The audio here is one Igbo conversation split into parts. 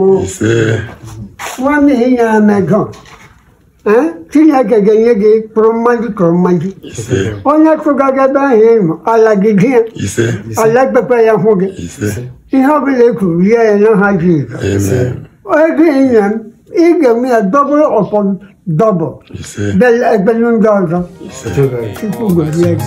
Nwanne ị nyere m ego Chineke ga-enye gị kpụrụ mmadụ kpụrụ mmadụ onye tụga gị ahụ ịmụ ala gị di ya ala ekpekpe ya hụ gị ihe ọbụla e kwuru rie ya na ha ji ego ịnya m ị ga-eme ya dọbụl ọpọ dọbụl bel ekpelu ndị ọzọ Chukwu gọzie gị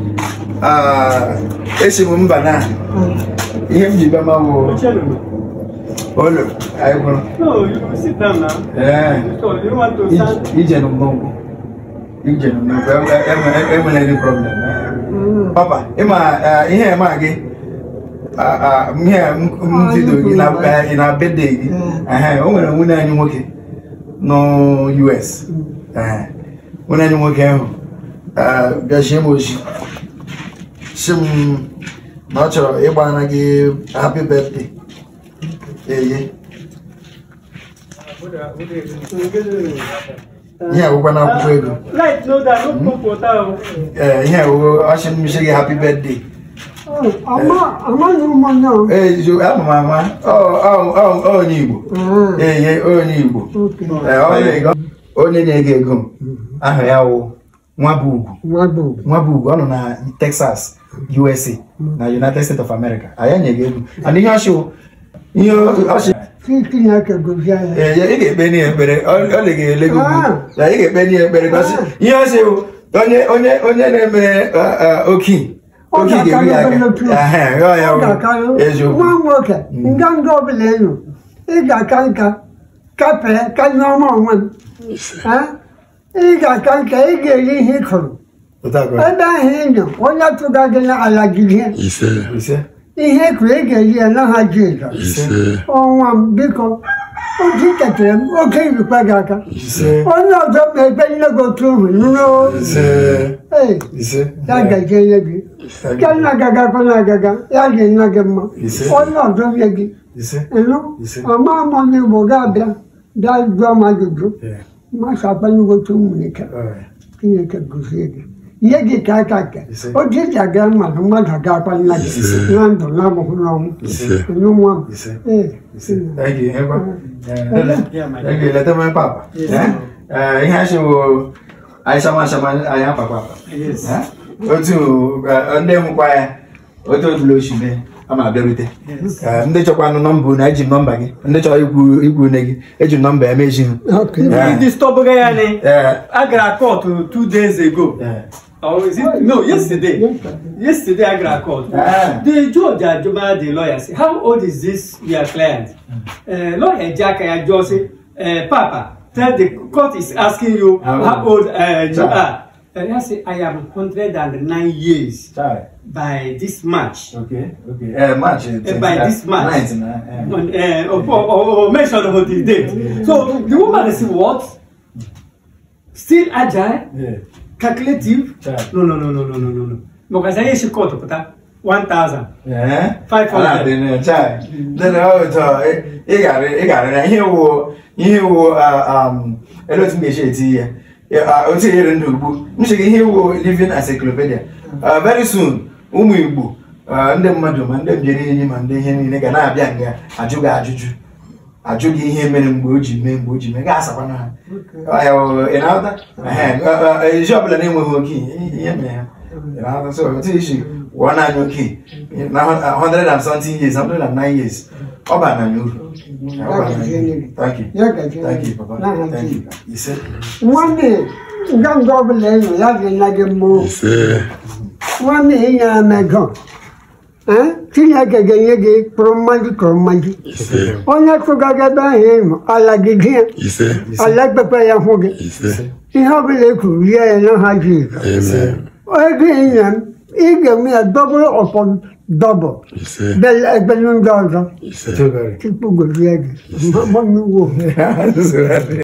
Ah, e si m mba na hmm. ihe m ji bịa ma bụ anyị kwụrụ eh. e- e- e- any problem eh? hmm. papa ịma ihe eh, ema gị ihe m gị oh, na gị hmm. o nwere nwunye anyị nwoke nọ US nwunye anyị nwoke ahụ m oji si m na ọ chọrọ ịgbana gị happy birthday eye ihe awụkwa na akwụkwọ ego hmm? ee eh, ihe awụ ọchị mmisi gị happy birthday ee eh, ama eh, m ama onye igbo hmm. eye onye igbo onye na-ego ego m hmm. aha ya wụ nwa bụ ugwu nwa ọ nọ na Texas USA mm. na United States of America anyị anyaghị egwu and ihe ọchị ihe ọchị ị ga-ekpe n'ihe ekpere ọ na ga-ele gị ugwu na ị ga-ekpe n'ihe ekpere ihe ọchị bụ onye onye onye na-eme oki oki ga-eru ya aka eziokwu nwa nwoke nganga mm. ọbụla enyo ị ga-aka nka kapee kanye ọma onwe m eh? igakanka igeli ihe kụrụ ebe ahụ ndụ onye tụga gị na-alaji ihe ihe kụrụ igeli ya na ha jizọs ọnwa m biko otu ketara m oke irikwa gị aka onye ọzọ ma ebe nne gị otu ohu ya gaje nye gị nke nna gaga kwana agaga ya dị nna gị mma onye ọzọ nye gị ịnụ ọma amọ n'igbo ga-abịa bịa jụọ m ajụjụ ማሳበኝጎቹ ምኒከ ክኒከ ጉዜግ የጌታ ታቀ ኦዲት ያገር ማለት ማለት አጋባል ላይ ናንዶ ላሞ ሁሉ ነው ነው እ እይ ሄባ እይ ለተማ ፓፓ እህ ያሽ አይሰማ ሰማ አያ ፓፓ እ ኦቱ እንደም ቋያ ኦቱ ብሎሽ ነህ a ma abịarute ndị chọkwanụ nọmba unu eji nọmba gị ndị chọrọ ikwu ikwu une gị eji nọmba eme ezi hụ distọbụga ya ni a gara kọtụ two days ago or oh, is it no yesterday yesterday i gra court the judge ajuma the lawyer say how old is this your client uh, lawyer jack ayajo say uh, eh, papa tell the court is asking you how old uh, you are Ferrier say I am hundred and nine years Sorry. by this March. Okay, okay. Uh, March. Uh, by this March. Ninety-nine. Uh, uh, oh, mention about the date. Yeah. So the woman is what? Still agile, yeah. calculative. Yeah. No, no, no, no, no, no, no, no. Mokasa yeshi koto pata. 1000 eh 500 dị na chai Then na ọtọ ị gara ị gara na ihe wo ihe wo ah, um elotu m ga-esi eti ihe otu enyere ndụ ugbu m sị ihe iwu living as encyclopedia very soon ụmụ igbo ndị mmadụ ma ndị mbiri enyi ma ndị ihe niile ga na-abịa nga ajụ gị ajụjụ ajụ gị ihe mere mgbe o ji mee mgbe o ji mee gaa asakwana ha ị na-aghọta ezi ọbụla na-enweghị oke ihe mere ha ị na-aghọta so otu isi one annual key na hundred and something years hundred and nine years ọba ananyo ọba ananyo thank you thank you papa thank you ise. wọ́n ní gbọ́ngàn ọ̀bùnà ẹ̀yàn láti nage mú wọ́n ní ìyẹn ẹ̀mẹ̀gàn tinye gege nye gị kpụrụ mmadụ kpụrụ mmadụ onye tụga gị ebe ahụ ịnụ ala gị gị ya ala ekpekpe ya hụ gị ihe ọbụla e kwuru rie ya na ha ji ego ego يجي دبل upon دبل بل بل من درجة تبقى زيادة ممنوع